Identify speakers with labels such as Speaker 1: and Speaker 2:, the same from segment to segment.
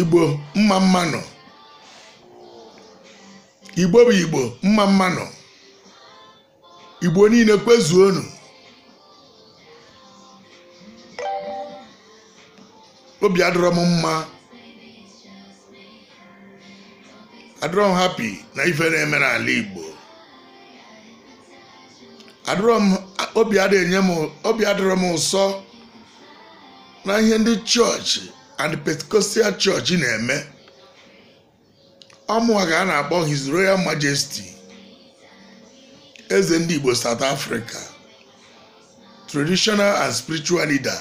Speaker 1: igbo mma mma nọ igbo bụ igbo mma mma nọ igbo niile kpezuo unu obi adọrọ m mma adọrọ m hapi na ife na-eme n'ala igbo adọrọ m obi adọrọ m ụsọ na ihe ndị chọọchị and Pentecostal Church na-eme ọmụwa ka a na-akpọ His Royal Majesty eze ndị Igbo South Africa traditional and spiritual leader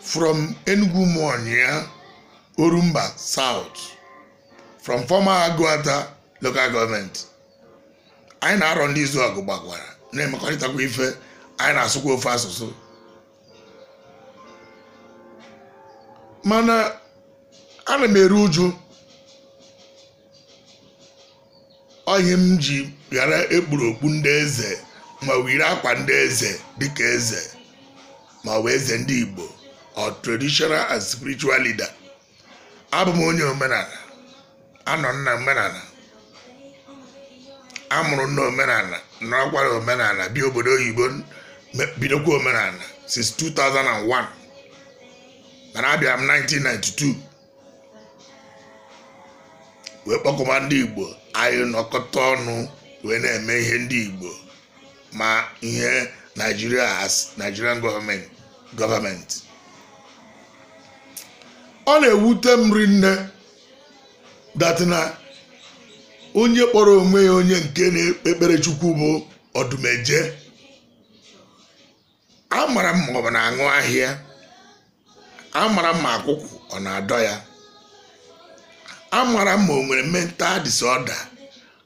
Speaker 1: from Enugu monia Orumba South from former Aguata local government anyị na-arọ ndị izu ọgụ na-emekọrịtakwa ife anyị na-asụkwa ofe asụsụ mana ana m eru uju onye m ji ghara ekpuru okpu ndị eze ma wiri akwa ndị eze dịka eze ma ọ bụ eze ndị igbo ọ traditional and spiritual leader abụ m onye omenala anọ nna omenala amụrụ nna omenala nọrọkwara omenala bi obodo oyibo bidokwa omenala since 2001 mana abịa m 1992 wee kpọkọba ndị igbo anyị nọkọta ọnụ wee na-eme ihe ndị igbo ma ihe Nigeria as nigerian government ọ na-ewute m rinne datina onye kpọrọ onwe ya onye nke na-ekpere chukwu bụ ọdụmeje amara m ma ọ bụ na-aṅụ ahịa amara ma akwụkwụ ọ na-adọ ya amara ma o nwere mental disorder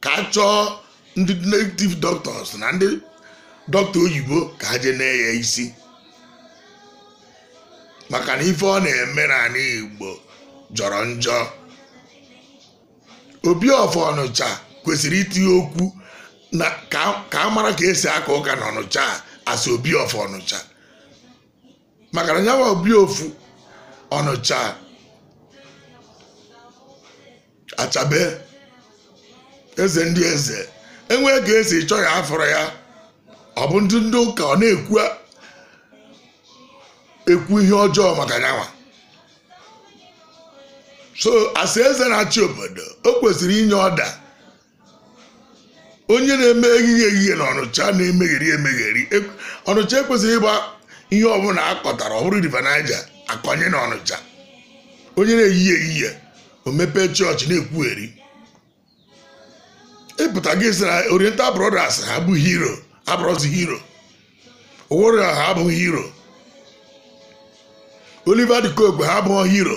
Speaker 1: ka a chọọ ndị native doctors na ndị dọkịta oyibo ka ha jee na isi maka na ife ọ na-eme na igbo jọrọ njọ obi ọfọ ọnụcha kwesịrị itinye okwu na ka a mara ka esi aka ụka na ọnụcha asị obi ọfọ ọnụcha maka na nyawa obi ofu Ọnụcha achabe eze ndị eze enwee ka esi chọọ ya afọrọ ya ọ bụ ndị ndị ụka ọ na-ekwu ekwu ihe ọjọọ maka nwa. so asị eze na-achị obodo o kwesịrị inye ọda onye na-eme ehihie ehihie na ọnụcha na-emegheri emegheri e, ọnụcha ekwesịrị ịgba ihe ọbụla akọtara ọ bụrụ river akọnye na onye na-eyi ehihie o mepee chọọchị na-ekwugheri ịpụta e gị sị na oriental brothers ha bụ hero abụrọzi hero owori ha abụghị hero oliver de coke ha abụghị hero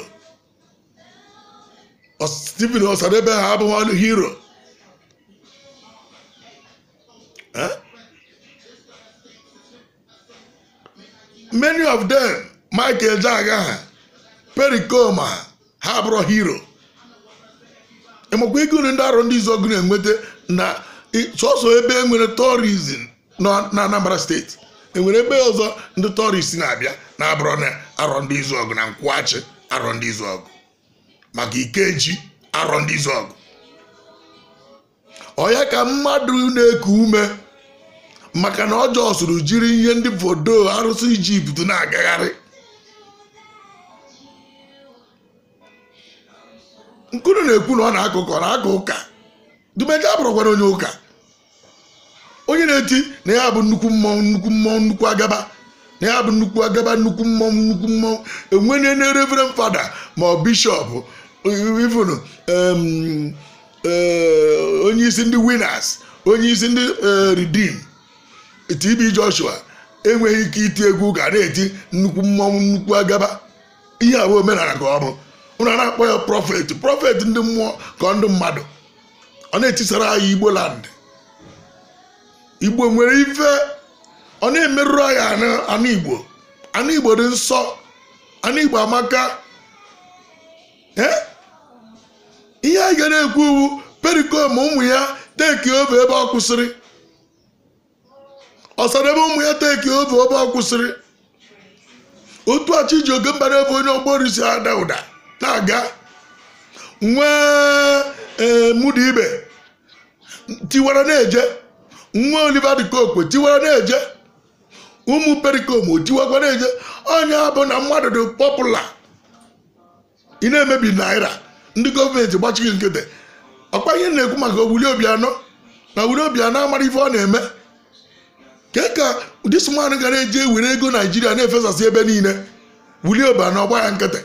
Speaker 1: stephen osadebe ha abụghị hero many of them Michael Jagger Pericoma ha abụrụ hero ịmakwa ike ndị arụ ndị izu ọgụ na-enweta na sọsọ ebe enwere tourism nọ na Anambra steeti enwere ebe ọzọ ndị tọrist na-abịa na-abụrụ na arọ ndị izu ọgụ na nkwụghachi arọ ndị izu ọgụ maka ikeji arọ ndị izu ọgụ ọya ka mmadụ na-eku ume maka na ọjọọ sụrụ jiri ihe ndị fodo arụsị Ijipt na-agagharị nkunu na-ekwu na ọ na-akụ ụka ọ na-akụ ụka dumeje abụrụkwara onye ụka onye na-eti na ya bụ nnukwu mmọnwụ nnukwu mmọnwụ nnukwu agaba na ya bụ nnukwu agaba nnukwu mmọnwụ nnukwu mmọnwụ enwenye na reverend fada ma ọ bishọp ifunu eh, onye isi ndị winners onye isi ndị eh, reden TB Joshua enweghị ike iti egwu ga na-eti nnukwu mmọnwụ nnukwu agaba ihe abụ omenala ka ọ bụ ụnụ a na-akpọ ya Prọfetị Prọfetị ndị mmụọ ka ndị mmadụ ọ na-etisara anyị igbo igbo nwere ife ọ na-emerụrụ anyị anụ igbo anụ igbo dị nsọ anụ igbo amaka ihe anyị ga na-ekwu uwu perikom ụmụ ya teki obe ebe ọ kwụsịrị ọsara ebe ụmụ ya teki obe ebe ọ kwụsịrị otu achi ji oge mbara ebe onye ọgbọ risi ada ụda na-aga nwee eh, ee tiwara na-eje nwa oliva dị kokwe tiwara na-eje ụmụ perikom tiwakwa na-eje onye bụ na mmadụ dị pọpụla ị na-emebi naira ndị gọọmenti gbachighị nkịtị ọkwa ihe na-ekwu maka obi anọ na obuli obianọ amara ife ọ na-eme ka ka ụdị sụmanụ gara eji ewere ego naijiria na-efesasị ebe niile wuli obianọ ọgba ya nkịtị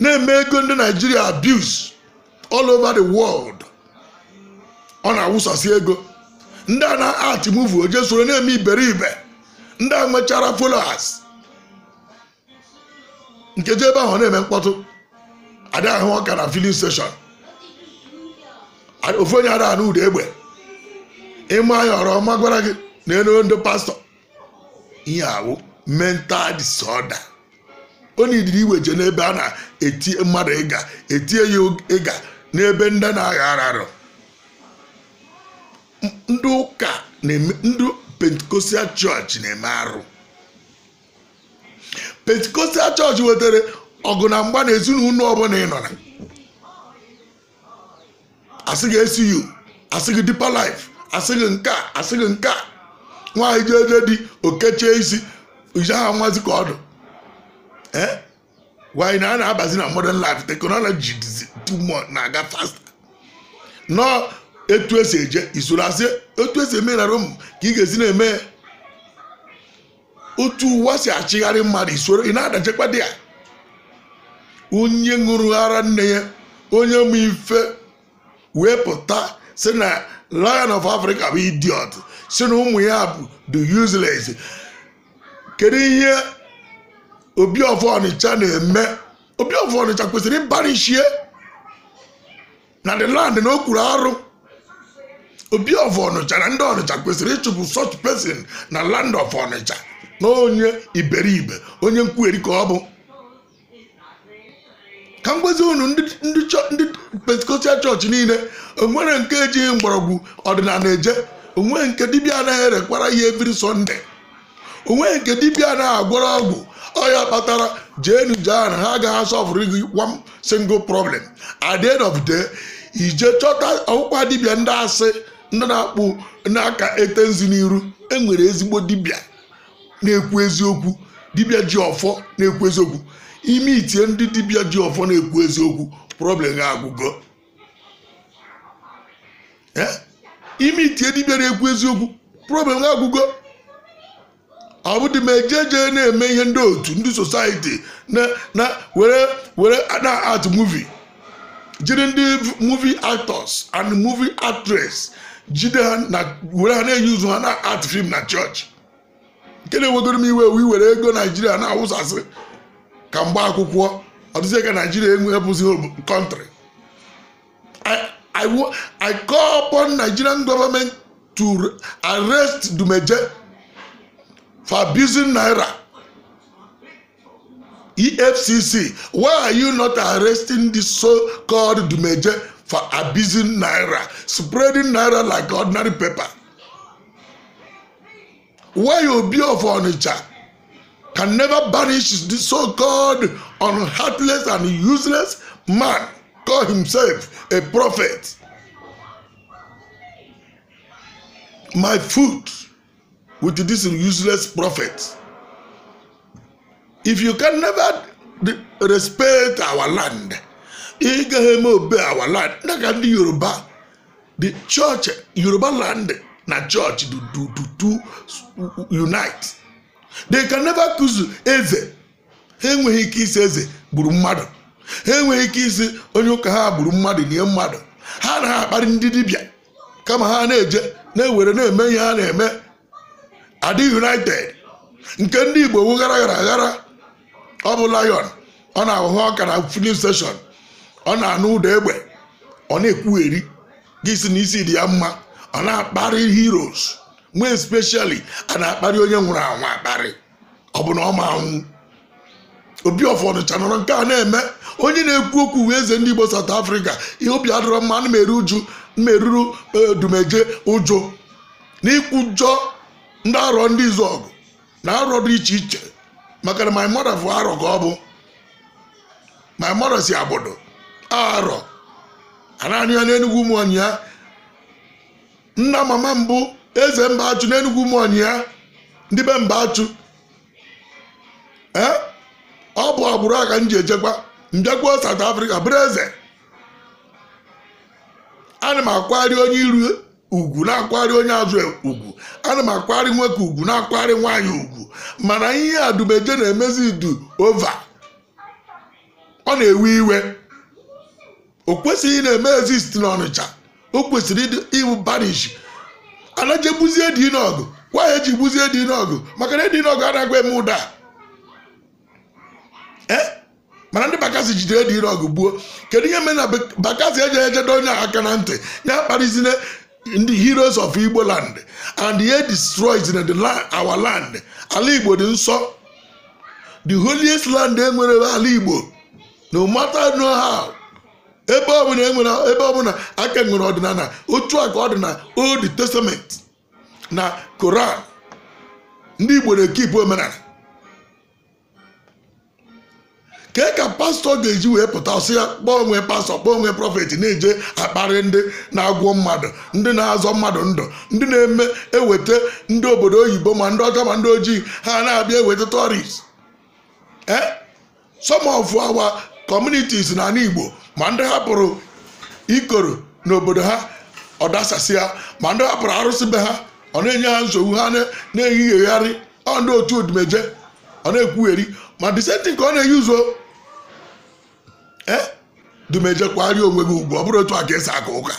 Speaker 1: na-eme ego ndị naijiria abuse all over the world ọ na-awụsasị ego ndị a na-art muvu oje soro na-eme iberibe ndị a nwechara followers nkeji ebe ahụ na-eme mkpọtụ ada ahụ ọka na filin steshọn ofu onye ada n'ụda egbe ịma anya ọrọ ọma gwara gị na elu ndị pastọ ihe awụ mental disorder onye idiri iwe je n'ebe a na etie mmadụ ịga etie ya ịga n'ebe ndị na-agha ararụ ndị ụka ndị pentikostal chọọchị na-eme arụ pentikostal chọọchị wetara ọgụ na mgba na ezinụlọ ọbụla ị nọ na asị gị esu asị gị dipa life asị nke asị gị nke nwaanyị jeje di okechie isi ije ha nwazi ka ọdụ gwanyị eh? na a na-abazi na modern life teknọlọji dizi na-aga fast nọ etu esi eje isorazie etu esi eme na rom ka ị ga-esi na-eme otu ụwa si achịgharị mmadụ isoro ị na-adachekwa dị ya onye ṅụrụ ara nne ya onye mfe ife wee pụta si na Lion of Africa bụ idiot si na ụmụ ya bụ the useless kedu ihe obi ọfọ ọnịcha na-eme obi ọfọ ọnịcha kwesịrị ịbarịchie na the land na okwuru arụ obi ọfọ ọnịcha na ndị ọnịcha kwesịrị ịchụpụ such person na land of ọnịcha na onye iberibe onye nkwugheri ka ọ bụ ka m gwezi unu ndị pentikọstal chọọchị niile onwere nke ejighị mgbọrọgwụ ọdịnala eje onwe nke dibịa anaghị erekwara ya ebiri sọnde onwe nke dibịa anaghị agwara ọgwụ ọ ya kpatara jeenu jaa na ha agaghị asọfụrụ gị one single problem at the end of the day ije chọta ọkwa dibịa ndị asị ndị na-akpụ n'aka ete nzu n'iru enwere ezigbo dibịa na-ekwu eziokwu dibịa ji ọfọ na-ekwu eziokwu ime itie ndị dibịa ji ọfọ na-ekwu eziokwu problem ga-agwụgo eh? ime itie dibịa na-ekwu eziokwu problem ga-agwụgo ọ bụdị ma eje jee na-eme ihe ndị otu ndị sosaiti na were were na art movie jiri ndị movie actors and movie actress jide ha na were ha na-eyi ụzụ ha na art film na chọọchị nke na-ewegoro m iwe iwu were ego naijiria na-awụsasị ka mgba akwụkwọ ọdụzie ka naijiria enwe enwebụzi kọntrị I call upon Nigerian government to arrest Dumeje for abusing naira efcc why are you not arresting the so-called dumeje for abusing naira spreading naira like ordinary paper why obi of onitsha can never banish the so-called unheartless and useless man call himself a prophet my foot. with this useless prophet. If you can never respect our land, i gaghị eme obe our land na ka ndị Yoruba the church Yoruba land na church do do do do unite. They can never kuzu eze enweghị ike isi eze gburu mmadụ ha enweghị ike isi onye ụka ha gburu mmadụ nye mmadụ ha na-akparị ha ndị dibịa kama ha na-eje na-ewere na-eme ihe ha na-eme adị united nke ndị igbo wu ghara aghara ọ bụ lion ọ na-ahụhụ ọka na filin steshọn ọ na-anụ ụda egbe ọ na-ekwugheri gị si n'isi dị ya mma ọ na-akparị heroes mgbe especially a na-akparị onye nwụrụ anwụ akparị ọ bụ na ọ ma anwụ obi ọfọdụcha nọrọ nke a na-eme onye na-ekwu okwu wee eze ndị igbo South Africa ihe obi adọrọ mma ana uju mmeruru eh, dumeje ụjọ ikwu ụjọ ndị arọ ndị izu ọgụ na arọ dị iche iche maka na my mother bụ arọ ka ọ bụ my mother si abodo arọ ananị ya n'enugwu ụmụọnyị ya nna mama mbụ eze mba achụ n'enugwu ụmụọnyị ya ndị be mba achụ ee eh? ọ bụ agbụrụ aka m ji ejekwa mbịakwuo South Africa bụrụ eze ana m akwari onye iru ugwu na-akwari onye azụ ugwu ana m akwari nwoke ugwu na-akwari nwaanyị ugwu mana ihe adubeje na-emezi du ova ọ na-ewe iwe o kwesịghị na-eme ezist n'ọnịcha o kwesịrị iwu banish anajebuzie dinọgụ gwa ya eji gbuzie dinọgụ maka na dinọgụ anaghị eme ụda e? mana ndị bakasi jidere dinọgụ gbuo kedu ihe mere na bakasi ejeghị ejedo onye aka na ntị ya kparịzine in the heroes of Igbo land and they destroys in the land, our land. Ala Igbo dị nsọ. The holiest land enwere ala Igbo no matter no how ebe ọbụla enwere ebe ọbụla aka e nwere ọdịnala otu a ka ọ dị na old testament na koran ndị Igbo na-ekipụ omenala ka e ka pastọ ga-eji wee pụta ọsị ya kpọọ onwe pastọ kpọọ onwe prọfetị na-eje akparị ndị na-agwọ mmadụ ndị na-azọ mmadụ ndụ ndị na-eme eweta ndị obodo oyibo ma ndị ọcha ma ndị ojii ha na-abịa eweta tọrist e, some of our communities na igbo ma ndị hapụrụ ikoro n'obodo ha ọ dasasịa ma ndị hapụrụ arụsị be ha ọ na-enye ha nsogbu ha na-eyighegharị ọ ndị otu odumeje ọ na-ekwugheri ma disenti ka ọ na-eyi ụzọ Eh? dumeje kwari onwe gị ugwu ọ bụrụ otu a ga esi aka ụka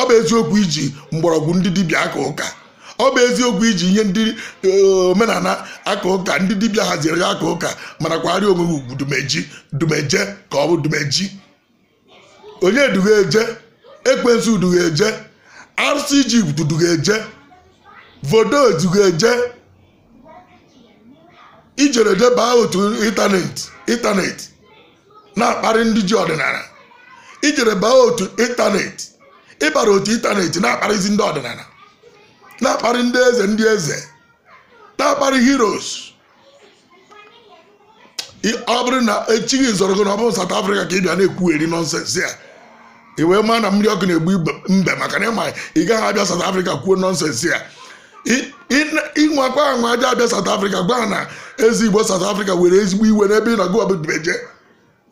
Speaker 1: ọ bụ eziokwu iji mgbọrọgwụ ndị dibịa aka ụka ọ bụ eziokwu iji ihe ndị e, omenala aka ụka ndị dibịa haziri aka ụka mana kwari onwe gị ugwu dumeji dumeje ka ọ bụ dumeji onye duga eje ekwensu duga eje arụsị ijipt duga vodo duga eje ijere otu ịntanetị ịntanetị na-akparị ndị ji ọdịnala ijere baa otu ịntanetị ịbara otu ịntanetị na-akparịzi ndị ọdịnala na-akparị ndị eze ndị eze na-akparị heroes ọ bụrụ na echighị zọrọ gị na ọ bụrụ South Africa ka ị bịa na-ekwugheri nọnsensị a ị wee maa na mmiri ọkụ na-egbu mbe maka na ịma ị gaghị abịa South Africa kwuo nọnsensị a ịnwakwa anwa aja abịa South Africa gwa ha na ezi Igbo South Africa were ezigbo iwe n'ebe ị nọgụ ọbụbeje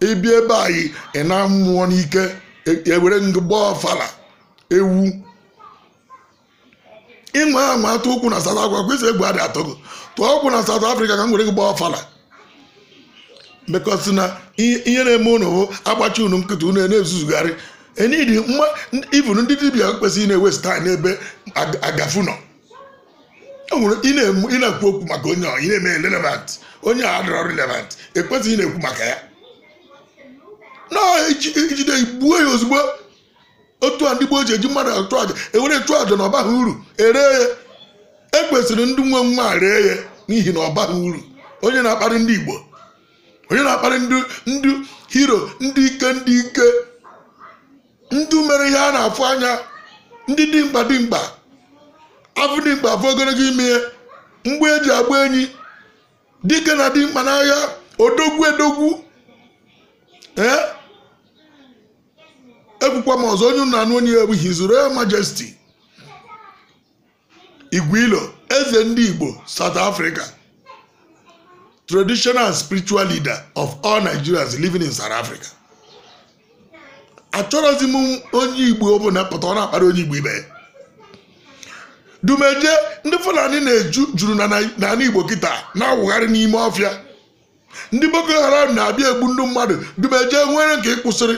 Speaker 1: ebi ebe anyị ị na-amụọ n'ike ewere e ngụ gbaa ọfala ewu ịnwe ama atụ ụkwụ na South Africa kwesịrị egwu adị atọ gị tụọ ọkwụ na South Africa ka m were gị gbaa ọfala bekọsị na ihe na-eme ụnụ bụ agbachi unu nkịtị ụnụ e na-ezuzugharị e enidi ivun ndị dibịa kwesịrị na-ewesta n'ebe agafu nọ ị na-ekwu okwu maka onye ọ ị na-eme relevant onye a adịrọ relevant ekwesịghị ị na-ekwu maka ya na ejide igbuo ya ozugbo otu a ndị gboo ji eji mmadụ achụ aja ewere chụọ aja na ọ uru ere ya ekwesịrị ndị nwe nwa ree ya n'ihi na ọ uru onye na-akparị ndị igbo onye na-akparị ndị hero ndị ike ndị ike ndị mere ihe a na-afụ anya ndị dimkpa dimkpa afọ dimkpa afọ ogologo ime ihe mgbe eji agba enyi dike na dimkpa n'ahịa odogwu edogwu ee ebukwa m ọzọ onye nna onye egbu his royal majesty igwilo eze ndị igbo south africa traditional spiritual leader of all nigerians living in south africa achọrọzi m onye igbo ọbụla pụta ọ na-akpara onye igbo ibe dumeje ndị fulani na-eju juru na igbo kịta na-awụgharị n'ime ọfịa ndị boko haram na-abịa egbu ndị mmadụ dumeje nwere nke ịkwụsịrị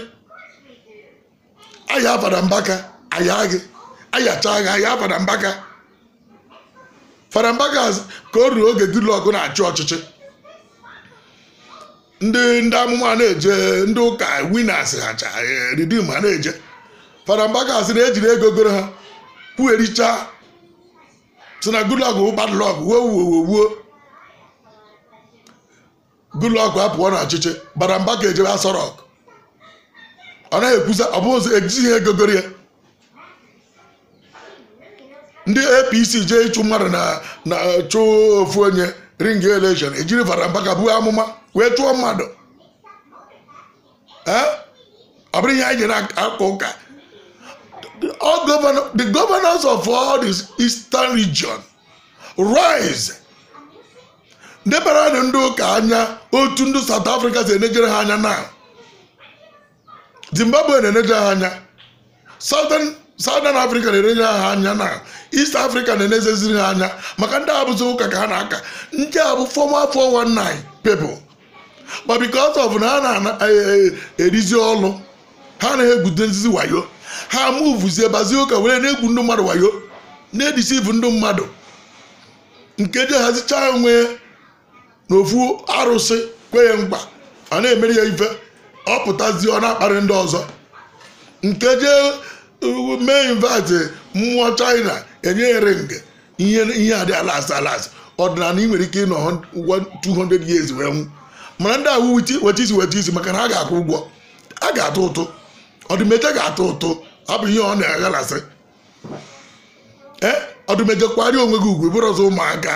Speaker 1: aya fada mbaka aya gị ayacha gị aya fada mbaka farambaka ka o ruru oge goodluck na-achị ọchịchị ndị ndị amụma na-eje ndị ụka winas hacha ridim ha e, na-eje farambaka mbaka na ejiri ego goro ha kwuericha sị na goodluck bụ badlọk wuo goodluck apụọ na ọchịchị barambaka ejebe ọ naghị ekwuzi ọ bụ ejighị egogoro ya ndị apc jee ịchụ mmadụ na na chụ ofu onye ring election ejiri vara mba ka buo amụma wee chụọ mmadụ ọ bụrụ ihe anyị nyere aka ụka the governors of all the eastern region rise ndebara ndị ụka anya otu ndị south africa si enejere ha anya na zimbabwe na-eneje ha anya southern africa na-eneje ha anya na east africa na-enezeziri ha anya maka ndị abụzi ụka ka ha na-aka ndị abụ bụ 419 people but because of na ha na-erizi e, e, ọlụ ha na-egwude nzizi wayo ha muvuzie bazie ụka were na-egwu ndị mmadụ wayo na-edisivu ndị mmadụ nke je onwe ya n'ofu arụsị kwe ya mkpa a na-emere ya ife ọ pụtazie ọ na-akparị ndị ọzọ nke jee uh, mee invite mmụọ china enyeere nge ihe adị alas alas ọdịnala ị nwere ike ịnọ 200 years wee nwụ mana ndị awụ weta isi weta isi maka na ha ga-akwụ ụgwọ a ga-atụ ụtụ ọdụmeje ga-atụ ụtụ abụ ihe ọ na-aghalasị ee eh, ọdụmeje kwarịa onwe gị ugwu bụrụ ọzọ ụmụaka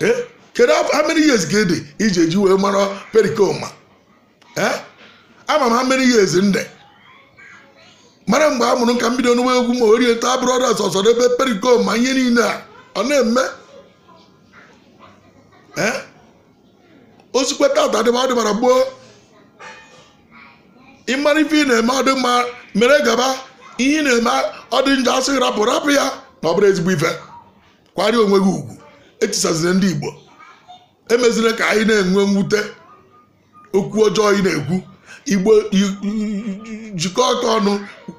Speaker 1: ee eh? kedu how many years ga-ede iji eji wee mara perikoma ama m how many years nde mara mgbe a mụrụ ka m bido egwu ma orie taa brothers ọsọ n'ebe perikoma ihe niile a ọ na-eme osikwe tata dịba dịbara gboo ịmara ife ị na-eme ọdị mma mere gaba ihe ị na-eme ọdị njọ asị rapụ rapụ ya na ọ bụrụ ezigbo ife kwarie onwe gị ugwu etisazila ndị igbo emeziri ka anyị na-enwe mwute okwu ọjọọ ị na-ekwu igbo jikọ aka ọnụ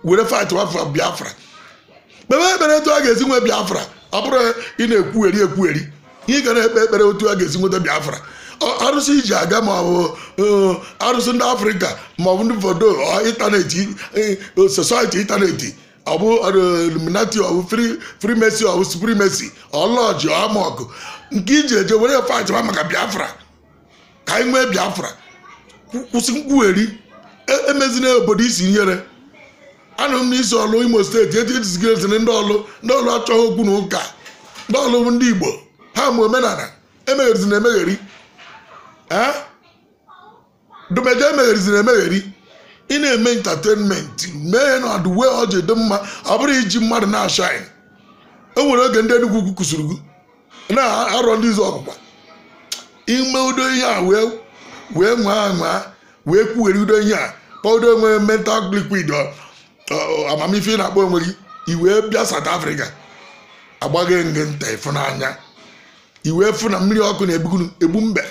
Speaker 1: were fight wafa biafra kpebe ekpere etu a ga-esi nwe biafra ọ bụrụ ị na-ekwugheri ekwugheri ị gara na-ekpe ekpere otu a ga-esi nweta biafra arụsị iji aga ma ọ bụ arụsị ndị afrịka ma ọ bụ ndị fodo ịntanetị society ịntanetị ọ bụ illuminati ọ bụ freemason ọ bụ supremacy ọlọji amọkụ nke iji eje were fight achịma maka biafra ka anyị nwee biafra kwụsị nkwugheri emezina e obodo isi nyere anụ m n'isi ọlụ imo steeti eti etizigireziri ndị ọlụ ndị ọlụ achọghị okwu na ụka ndị ọlụ ndị igbo ha ma omenala emegherizina emegheri dumeje emegherizina emegheri ị na-eme intatenment mee na ọdụ wee ọ ji dị mma ọ bụrụ iji mmadụ na-ashaịn e nwere oge ndị enugwu kwukwusiri na-arọ ndị ụzọ ime udo ihe a wee nwaa nwaa wee kwuwere udo ihe a pọdo onwe e mental liquid amamife na-akpọ onwere iwee bịa South Africa agbaghị nge nta ịfụnanya iwee fụ na mmiri ọkụ na-egbu mbe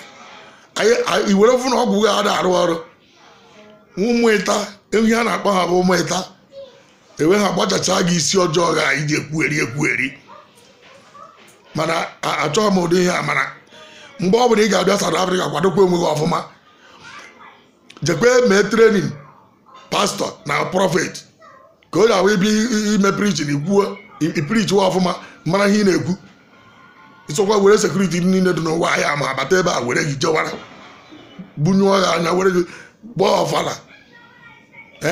Speaker 1: iwere fụ na ọgwụ ga ada arụ ọrụ ụmụ ịta a na-akpọ ha bụ ụmụ ịta enwe ha gbachacha gị isi ọjọọ ga iji ekwugheri ekwugheri mana achọghị m ụdị ihe a mana mgbe ọ bụla ị ga-abịa South afrịka kwadokwa onwe gị ọfụma jekwe mee trenin pastọ na prọfet ka o ga-awụ ibi ime prichin iprichi wa ọfụma mara ihe ị na-ekwu ịsọkwa were sekuriti niile dị n'ụwa ahịa ma abata ebe a were gị jewara bunyụọ gị anya were gị gbaa ọfala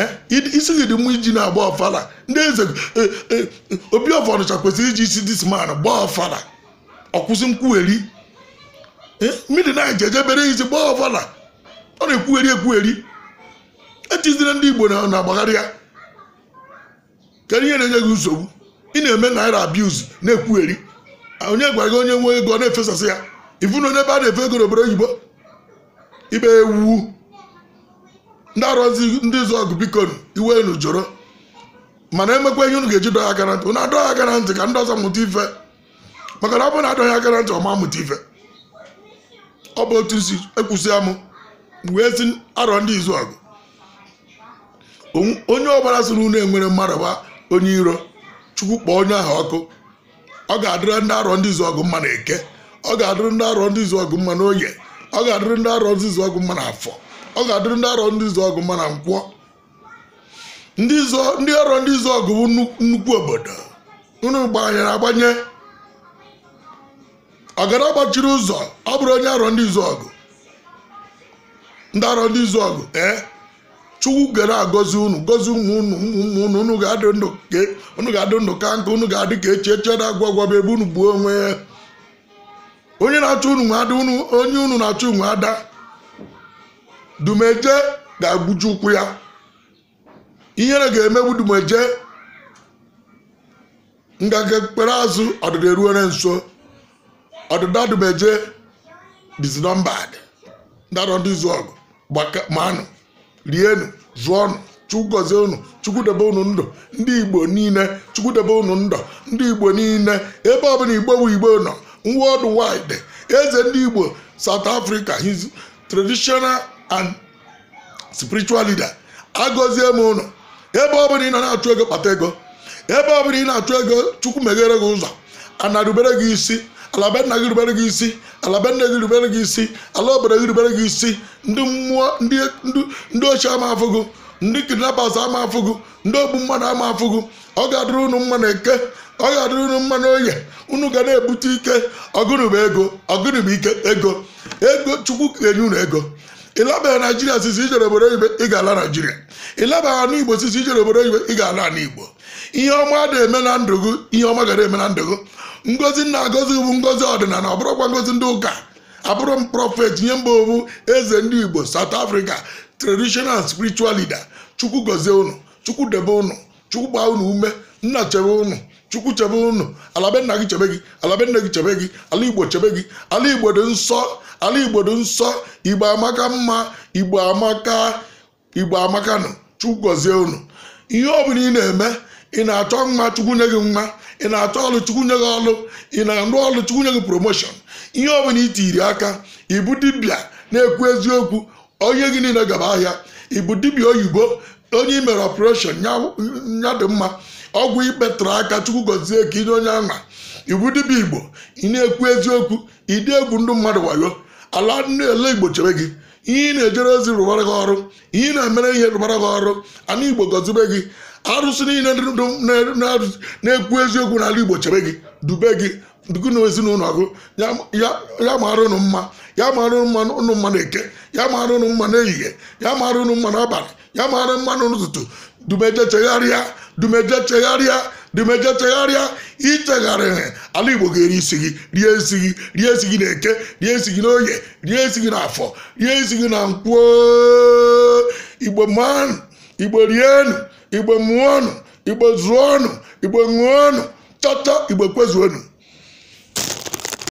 Speaker 1: eh? isi gị dị mma iji na-agba ọfala ndị eze e, e, e, obi ọfọdụcha kwesịrị iji isi disman gbaa ọfala ọkwụsị nkwugheri mmiri na eje bere izi gbaa ọbụla ọ na-ekwugheri ekwugheri etizire ndị igbo na-agbagharị ya kedu ihe na-enye gị nsogbu ị na-eme naira abuz na-ekwugheri onye gwara gị onye nwe ego na-efesasị ya ifu onye ebe a na-efe ego n'obodo oyibo ibe ewu ndị arụzi ndị zụ ọgụ biko iwe unu jụrụ mana emekwa ihe unu ga-eji dọọ aka na ntị unu adọọ aka na ntị ka ndị ọzọ mụta ife maka na ọ bụrụ na adọghị aka na ntị ọma mụta ife ọ bụ otu si ekwusịa m wee si arọ ndị izu ọgụ onye ọbara si na unu enwere mmadụ gba onye iro chukwu kpọọ onye ahụ ọkụ ọ ga-adịrị ndị arọ ndị izu ọgụ mma na eke ọ ga-adịrị ndị arọ ndị izu ọgụ mma na ọ ga-adịrị ndị arọ ndị izu ọgụ mma na afọ ọ ga-adịrị ndị arọ ndị izu ọgụ mma na nkwọ ndị arọ ndị izu ọgụ bụ nnukwu obodo unu gbanyere agbanye ọgara gbachiri ụzọ ọ bụrụ onye arọ ndị izu ọgụ ndị arọ ndị izu ọgụ ee chukwu gara agọzi unu gozi ụmụ unu ụmụ ụmụ unu unu ga-adị ndụ ka e, nka unu ga-adị ka echi eche na agwa gwaba ebe unu gbuo onwe ya onye na-achụ unu nwe ada unu onye unu na-achụ nwe ada dumeje ga-agbuju ụkwụ ya ihere ga-emegbu dumeje nga kpere ekpere azụ ọdịda eruore nso ọdụda dụbeje dizinọmbad ndara ndị izu ọgụ manụ rienu zụọnụ chukwu gọzie unu chukwu debe unu ndụ ndị igbo niile chukwu debe unu ndụ ndị igbo niile ebe ọbụla igbo bụ igbo nọ world wide eze ndị igbo south africa his traditional and spiritual leader agọzie m ụnọ ebe ọbụla ị nọ na-achụ ego kpata ego ebe ọbụla ị na-achụ ego chukwu meghere gị ụzọ anarubere gị isi ala be nna gị rubere gị isi ala be nne gị rubere gị isi ala obodo gị rubere gị isi ndị mmụọ ndị ochie ama afụgụ ndị kidnappers ama afụgụ ndị ogbu mmadụ ama afụgụ ọ ga-adịrị unu mma na eke ọ ga-adịrị unu mma na oye unu ga na-ebute ike ọgụrụba ego ọgụrụba ike ego ego chukwu ga-enye unu ego ịlabaghị naijiria sisi ijere obodo oyibo ị ga-ala naijiria ịlabaghị anụ igbo sisi ijere obodo oyibo ị ga-ala ala ihe ọma na-eme na ndụ gị ihe ọma ga na-eme na ndụ gị ngozi nna-agọzi bụ ngozi ọdịnala ọ ngozi ndị ụka abụrụ m prọfet nye mba owu eze ndị igbo saut africa traditional spirichual leader chukwu gozie unu chukwu debe unu chukwu gbaa unu ume nna chebe unu chukwu chebe unu alabe gị chebe gị alabe gị chebe gị ala igbo chebe gị ala igbo dị nsọ ala igbo dị nsọ igbo amaka mma igbo amaka igbo amakanụ chukwu gozie unu ihe ọ bụla ị na-eme ị na-achọ mma chukwu nye gị mma ị na-achọ ọlụ chukwu nye gị ọlụ ị na-arụ ọlụ chukwu nye gị promoshọn ihe ọ bụla itiri aka ịbụ dibịa na-ekwu eziokwu onye gị niile gaba ahịa ịbụ dibịa oyibo onye imere ọpụreshọn nya mma ọgwụ ikpetụrụ aka chukwu gọzie ka inye onye ama iwu dibịa igbo ị na-ekwu eziokwu ịdị egwu ndị mmadụ wayo ala ndị ele igbo chere gị ihe ị na-ejere ozi rụbara gị ọrụ ihe ị na-emere ihe rụbara gị ọrụ ana igbo gọzibe gị arụsị niile na-ekwu eziokwu n'ala Igbo chebe gị dube gị dugu na ezinụlọ gụ ya mara ụnụ mma ya mara ụnụ mma na-eke ya mara ụnụ mma n'ehihie ya mara ụnụ mma n'abalị ya mara mma n'ụtụtụ dumeje chegharịa dumeje chegharịa dumeje chegharịa ichegharịrị ala Igbo ga-eri isi gị rie isi gị rie isi gị na eke rie isi gị n'oye rie isi gị n'afọ rie isi gị na nkwo Igbo man Igbo rienu igbe muono ọnụ igbe zụọ ọnụ igbe ṅụọ ọnụ chọta